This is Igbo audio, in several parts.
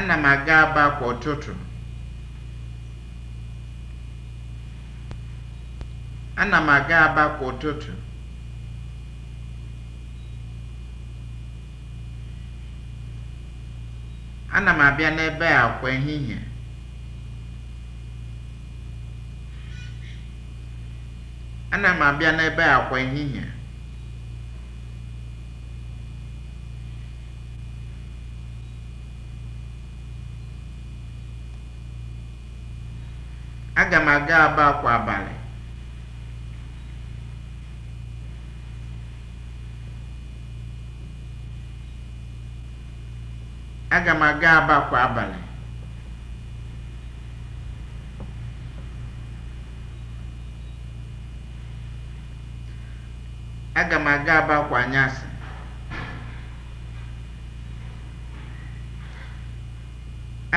ana m aga Aba kwa ụtụtụ ana m aga Aba kwa ụtụtụ ana m abịa n'ebe a kwa ehihie ana m abịa n'ebe a kwa ehihie aga Aba kwa abalị. Aga m aga Aba kwa abalị. Aga m aga Aba kwa anyasị.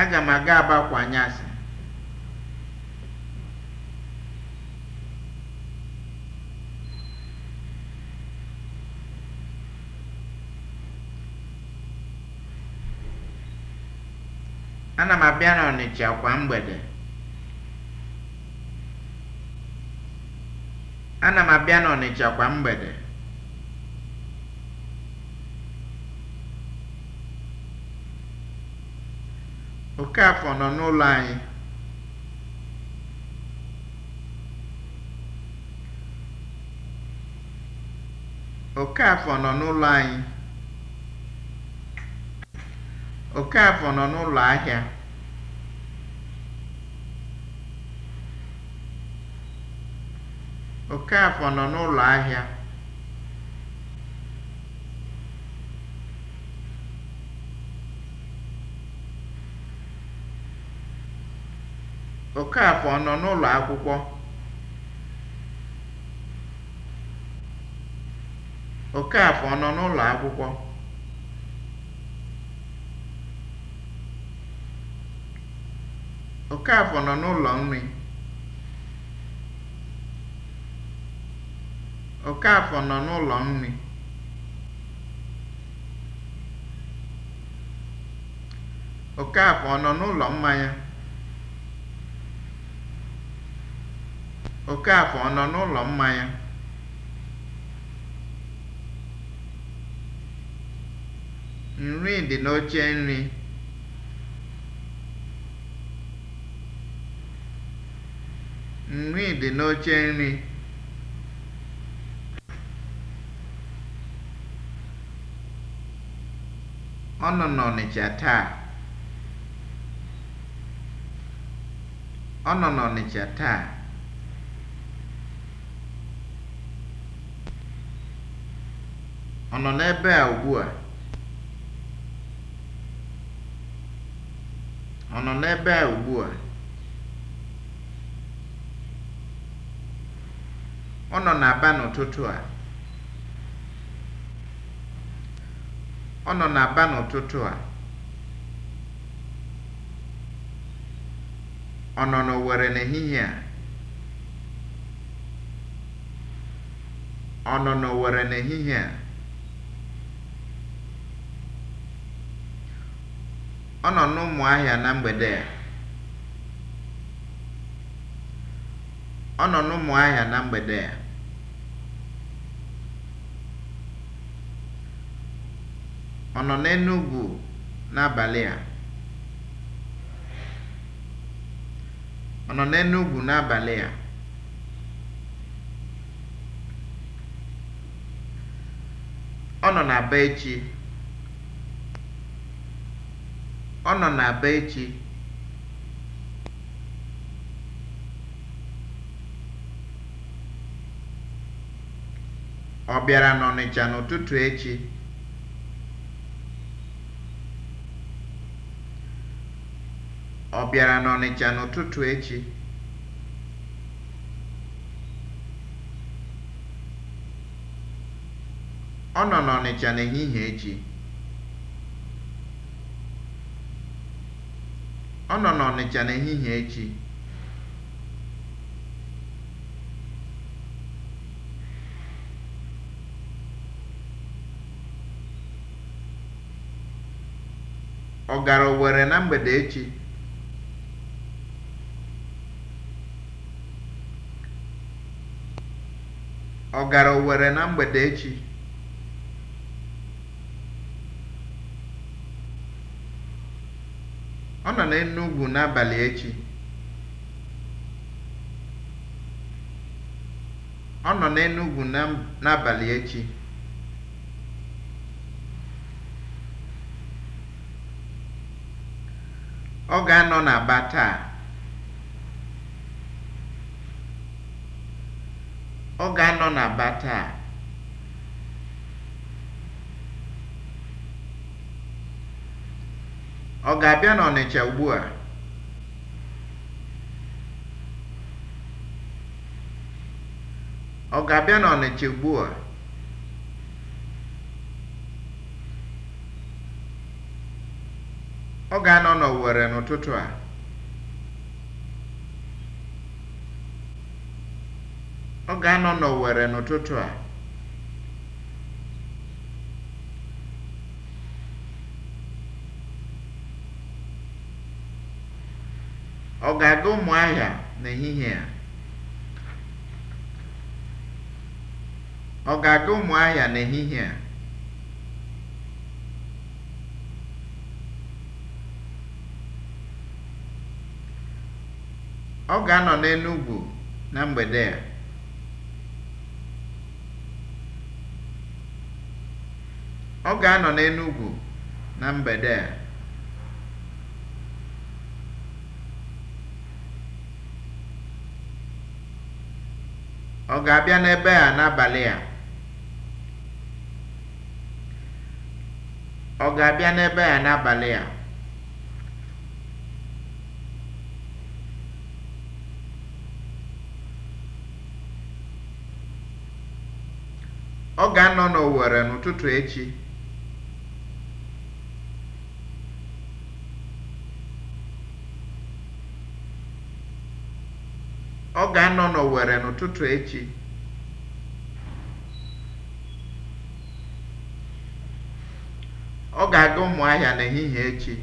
Aga m aga Aba kwa anyasị. Ana m abịa n'Ọnịcha kwa mgbede. Ana m abịa n'Ọnịcha nọ n'ụlọ anyị. Okafọ nọ n'ụlọ ahịa. Okafọ nọ n'ụlọ ahịa. Okafọ nọ n'ụlọ akwụkwọ. Okafọ nọ n'ụlọ akwụkwọ. Okafọ nọ n'ụlọ nri. Okafọ nọ n'ụlọ nri. Okafọ ọ nọ n'ụlọ mmanya? Okafọ ọ nọ n'ụlọ mmanya? Nri dị n'oche nri. Nri dị n'oche nri. Ọ nọ n'Ọnịcha taa. Ọ nọ n'Ọnịcha taa. Ọ nọ n'ebe a ugbua? Ọ nọ n'ebe a ugbua? Ọ nọ n'Aba n'ụtụtụ a. Ọ nọ n'ụtụtụ a. Ọ nọ n'ehihie a. Ọ nọ a. Ọ nọ n'Ụmụahịa na mgbede a. a. Ọ nọ n'Enugwu n'abalị a? Ọ nọ n'Enugwu n'abalị a? Ọ nọ n'Aba echi? Ọ nọ n'Aba echi? bịara n'Ọnịcha n'ụtụtụ echi? Ọ bịara n'Ọnịcha n'ụtụtụ echi? Ọ nọ n'Ọnịcha n'ehihie echi. Ọ nọ n'Ọnịcha n'ehihie echi. Ọ gara Owerri na mgbede echi? Ọ gara Owere na mgbede echi? Ọ nọ n'Enugwu n'abalị echi. Ọ nọ n'Enugwu n'abalị echi. Ọ ga-anọ n'Aba taa. Ọ ga-anọ na ba taa. Ọ ga-abịa n'Ọnịcha ugbua? Ọ ga-abịa n'Ọnịcha ugbua? Ọ ga-anọ n'Owere n'ụtụtụ a. Ọ ga-anọ n'Owere n'ụtụtụ a. Ọ ga-aga ahịa n'ehihie a? Ọ ga-aga ahịa n'ehihie a? Ọ ga-anọ n'Enugwu na mgbede a. Ọ ga-anọ n'Enugwu na mgbede a. Ọ ga-abịa n'ebe a n'abalị a? Ọ ga-abịa n'ebe a n'abalị a? Ọ ga-anọ n'Owere n'ụtụtụ echi. ọ ga-anọ n'Owere n'ụtụtụ echi ọ ga-aga Ụmụahịa n'ehihie echi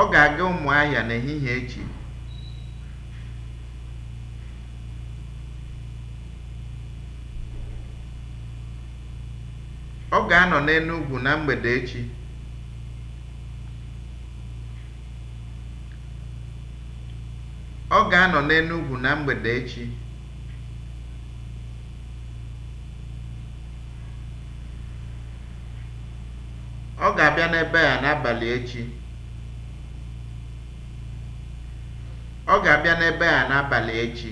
ọ ga-aga n'ehihie echi ọ ga-anọ n'Enugwu na mgbede echi ga-anọ n'Enugwu na mgbede echi. Ọ ga-abịa n'ebe a n'abalị echi. Ọ ga-abịa n'ebe a n'abalị echi.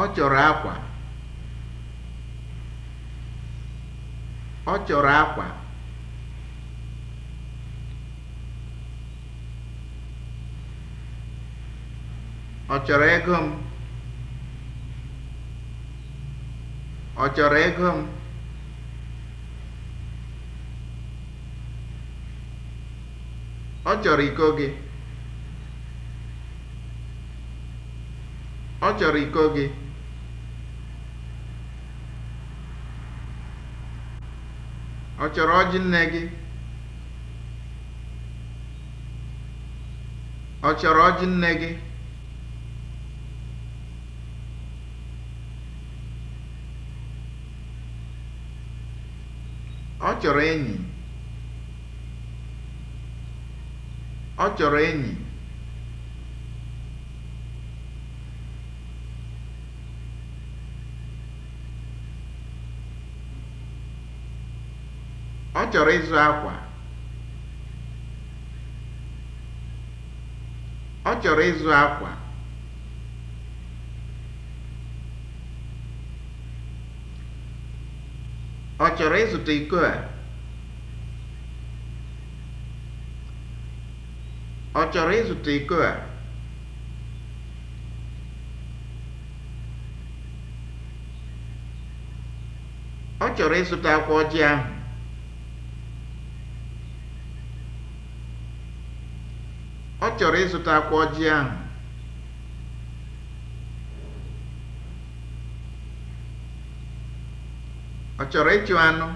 Ọ chọrọ akwa. Ọ chọrọ akwa. ọ chọrọ ego m ọ chọrọ ego m ọ chọrọ iko gị ọ chọrọ iko gị ọ chọrọ ọjị nne gị ọ chọrọ ọjị nne gị chọrọ enyi ọ chọrọ enyi ọ chọrọ ịzụ akwa ọ chọrọ ịzụ akwa Ọ chọrọ ịzụta iko a? Ọ chọrọ ịzụta iko Ọ chọrọ Ọ chọrọ ịzụta akwa ọjị ahụ. Ọ chọrọ ịchụ anụ?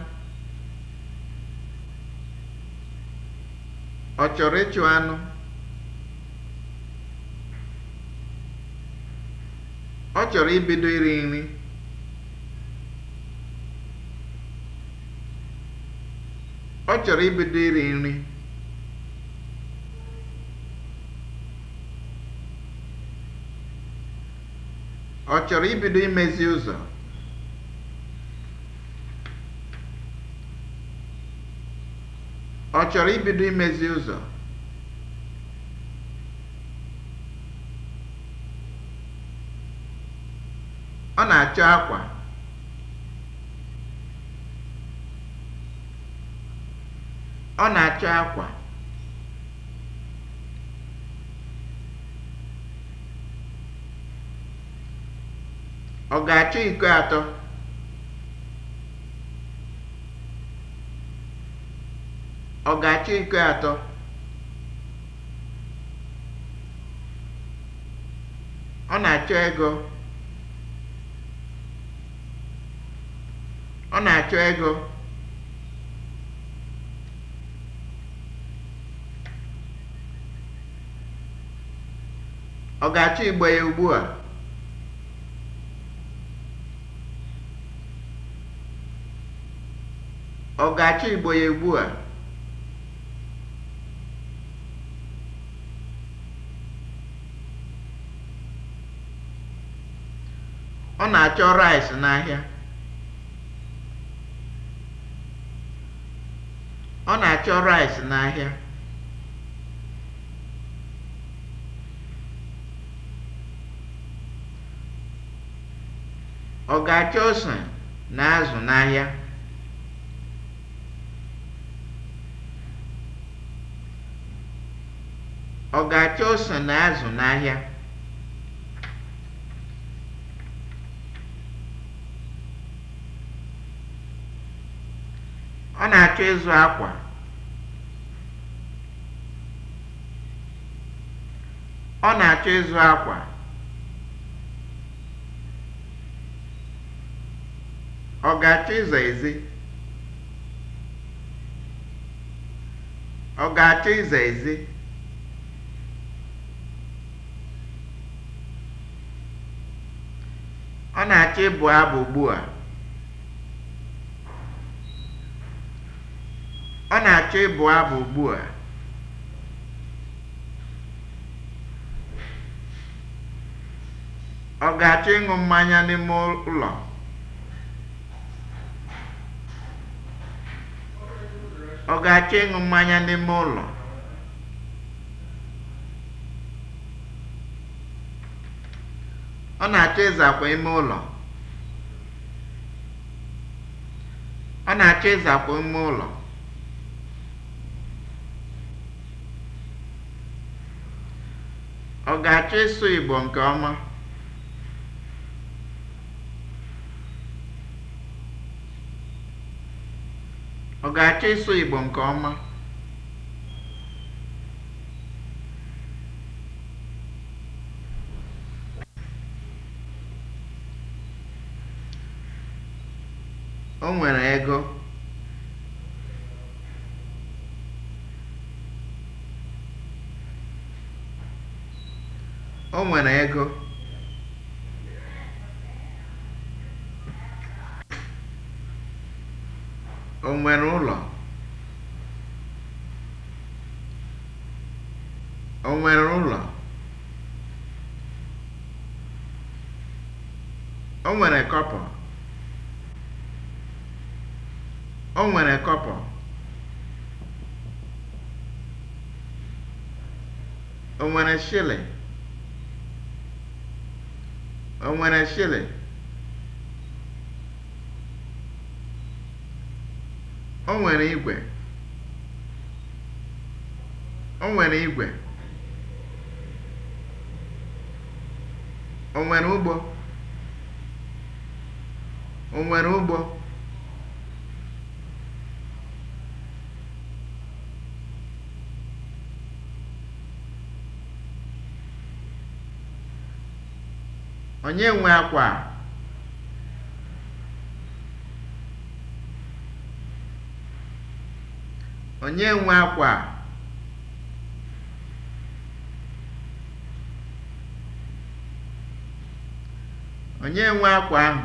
Ọ chọrọ ịchụ anụ? Ọ chọrọ ibido iri nri? Ọ chọrọ ibido iri nri? Ọ chọrọ ibido imezi ụzọ? chọrọ ibido imezi ụzọ ọ na-achọ akwa ọ na-achọ akwa ọ ga-achọ iko atọ Ọ ga-achọ iko atọ? Ọ na-achọ ego. Ọ na-achọ ego. Ọ ga-achọ igbe ya ugbu a? Ọ ga-achọ igbe ya ugbu a? Ọ na-achọ rice n'ahịa. Ọ na-achọ rice n'ahịa. Ọ ga-achọ ose na azụ n'ahịa. Ọ ga-achọ ose na azụ n'ahịa. ọ na-achọ ịzụ akwa ọ na-achọ ịzụ akwa ọ ga-achọ ịzọ ezi ọ ga-achọ ịzọ ezi ọ na-achọ ịbụ abụ ugbu a Ọ na-achọ ịbụ abụ ugbu a. Ọ ga-achọ ịṅụ mmanya n'ime ụlọ? Ọ ga-achọ ịṅụ mmanya n'ime ụlọ? Ọ na-achọ ịzakwa ime ụlọ? Ọ na-achọ ịzakwa ime ụlọ? Ọ ga-achọ ịsụ Igbo nke ọma? Igbo nke ọma? O nwere ego. O nwere ego. O nwere ụlọ? O nwere ụlọ? O nwere kọpọ? O nwere kọpọ? O nwere shilling? O nwere shilling? O nwere igwe? O nwere igwe? O nwere ụgbọ? O nwere ụgbọ? Onye nwe akwa Onye nwe akwa Onye nwe akwa ahụ?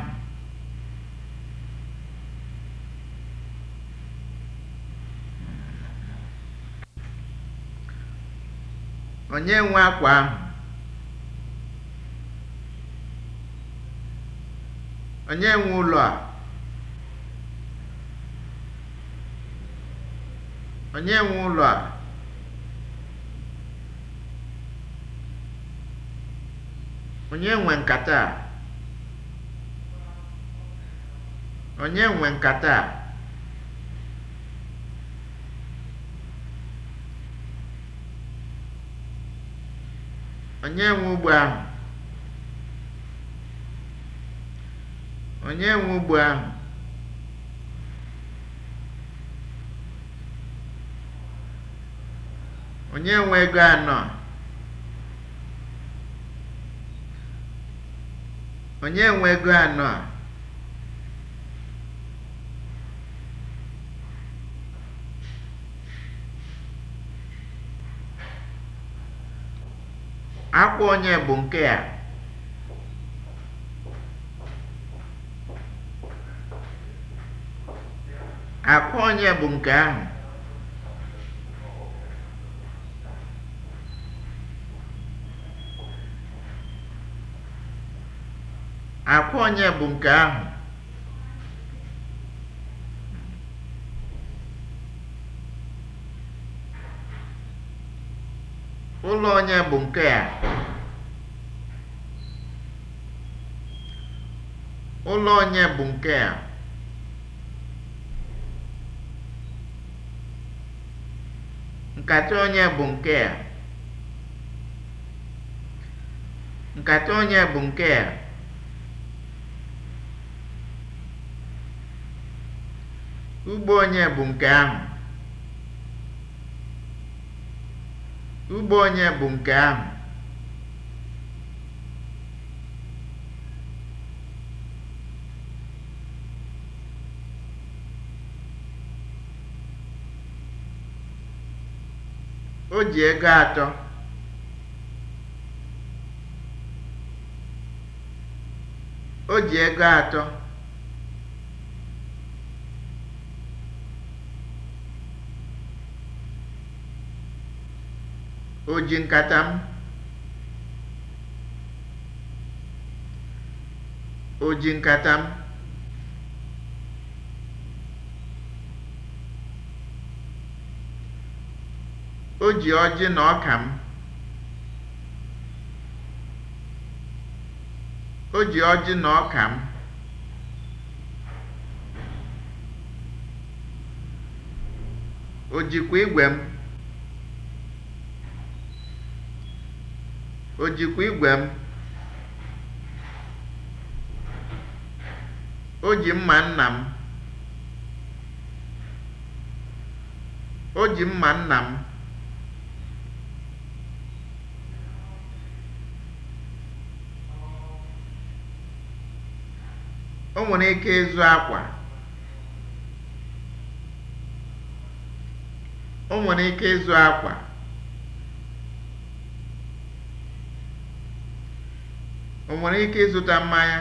Onye nwe akwa ahụ? onye enwe ụlọ a. onye enwe ụlọ a. nwe nkata a? Onye nwe nkata ụgbọ ahụ? Onye nwe ugbo ahụ? Onye nwe ego anọ a? Onye nwe ego anọ a? akwụ onye bụ nke a? Akwa onye bụ nke ahụ? Akwa onye bụ nke ahụ? Ụlọ onye bụ nke a? Ụlọ onye bụ nke a? Nkata onye bụ nke a? Nkata onye bụ nke a? Ugbo onye bụ nke ahụ? Ugbo onye bụ nke ahụ? O ji ego atọ. O ji ego atọ. O ji nkata m. O ji nkata m. O ji ọjị na ọka m. O ji ọjị na ọka m. O jikwa igwe m. O jikwa igwe m. O ji mma nna m. O ji mma nna m. o nwere ike ịzụ akwa o nwere ike ịzụ akwa o nwere ike ịzụta mmanya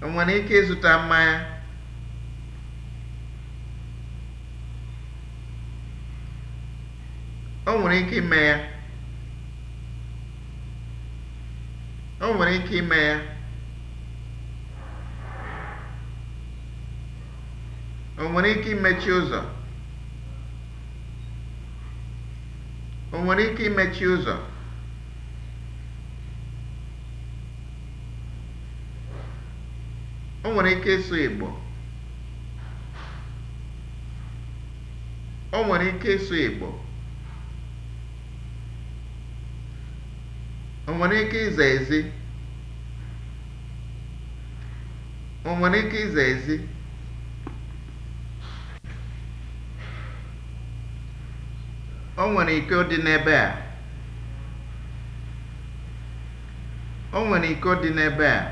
o nwere ike ịzụta mmanya o nwere ike ime ya o nwere ike ime ya o nwere ike imechi ụzọ o nwere ike imechi ụzọ o nwere ike ịsụ Igbo o nwere ike ịsụ Igbo o nwere ike ịza ezi o nwere ike iza ezi o nwere ike dị n'ebe a o nwere ike dị n'ebe a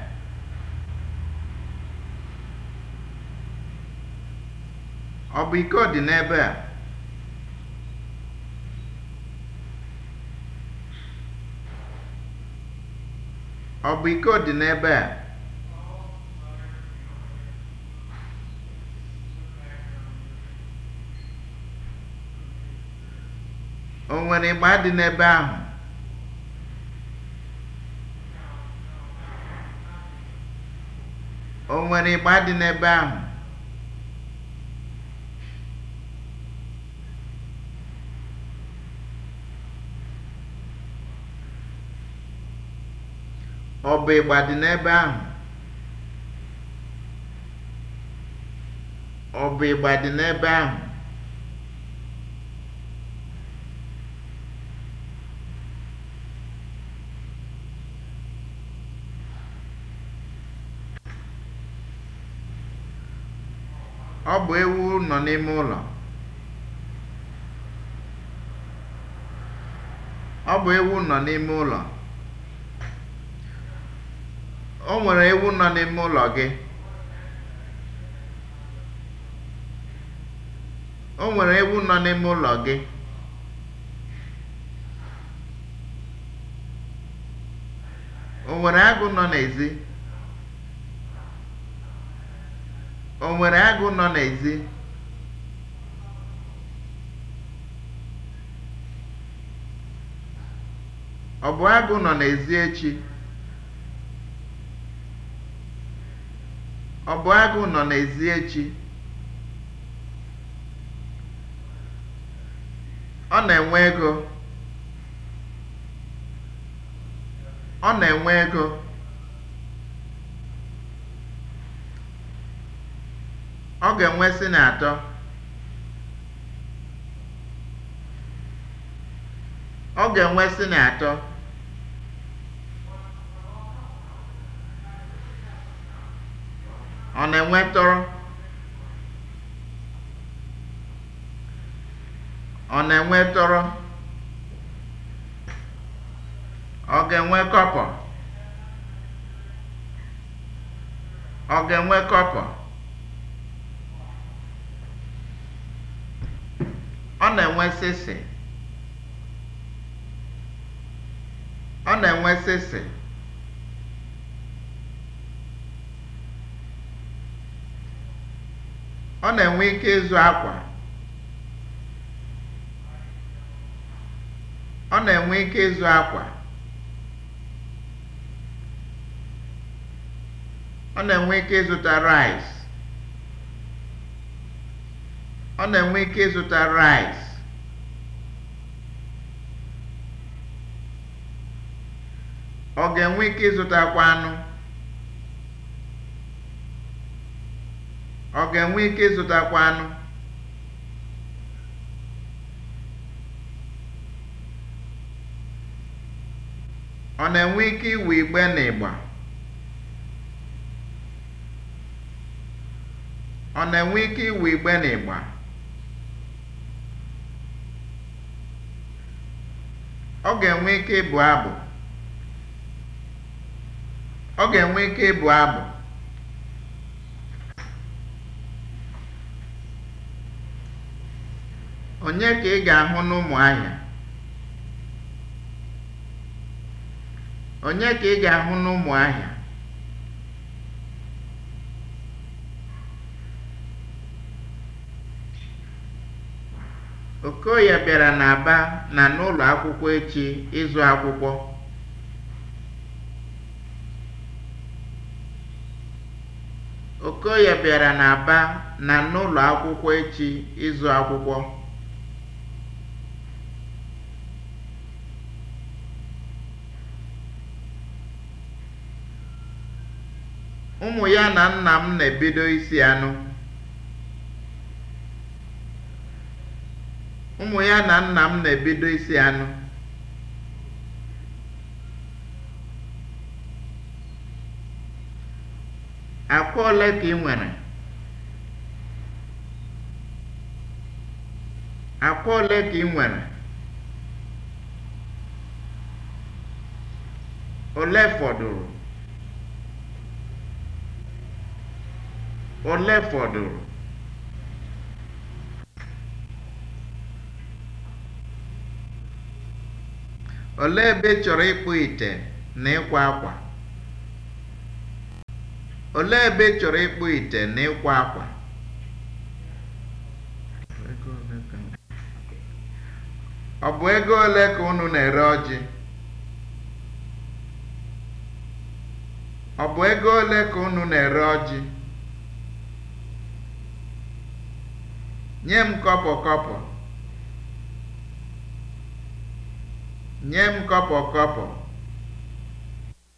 ọ bụ ike dị n'ebe a ọ bụ ike dị n'ebe a nwere ịgba dị n'ebe ahụ o nwere ịgba dị n'ebe ahụ ọ bụ ịgba dị n'ebe ahụ ọ bụ ịgba dị n'ebe ahụ Ọ bụ ewu nọ n'ime ụlọ. Ọ bụ ewu nọ n'ime ụlọ. O nwere ewu nọ n'ime ụlọ gị. O nwere ewu nọ n'ime ụlọ gị. O nwere agụ nọ n'ezi? O nwere agụ nọ n'ezi? Ọ bụ agụ nọ n'ezi echi? Ọ bụ agụ nọ n'ezi echi? Ọ na-enwe ego. Ọ na-enwe ego. Ọ ga-enwe na atọ. Ọ ga-enwe sịnị atọ. Ọ na-enwe tọrọ. Ọ na-enwe tọrọ. Ọ ga-enwe kọpọ. Ọ ga-enwe kọpọ. na-enwe sịsị ọ na-enwe sịsị ọ na-enwe ike ịzụ akwa ọ na-enwe ike ịzụ akwa ọ na-enwe ike ịzụta rice ọ na-enwe ike ịzụta rice Ọ ga-enwe ike ịzụtakwu anụ? Ọ ga-enwe ike ịzụtakwu anụ? Ọ na-enwe ike iwu igbe na ịgba? Ọ na-enwe ike iwu igbe na ịgba? Ọ ga-enwe ike ịbụ abụ? Ọ ga-enwe ike ịbụ abụ. Onye ka ị ga-ahụ n'ụmụ Onye ka ị ga-ahụ Okoye bịara n'Aba na n'ụlọ akwụkwọ echi ịzụ akwụkwọ. Okoye bịara n'Aba na n'ụlọ akwụkwọ echi ịzụ akwụkwọ. Ụmụ ya na nna m na-ebido isi Ụmụ ya na nna m na-ebido isi anụ. akwa ole ka ị nwere akwa ole ka ị nwere ole fọdụrụ ole fọdụrụ ole ebe chọrọ ịkpụ ite na ịkwa akwa Olee ebe ị chọrọ ịkpụ ite akwa? Ọ bụ ego ole ka unu na-ere ọjị? Ọ bụ ego ole ka unu na-ere ọjị? Nye m kọpọ Nye m kọpọ kọpọ.